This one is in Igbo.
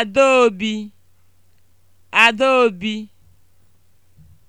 Adaobi Adaobi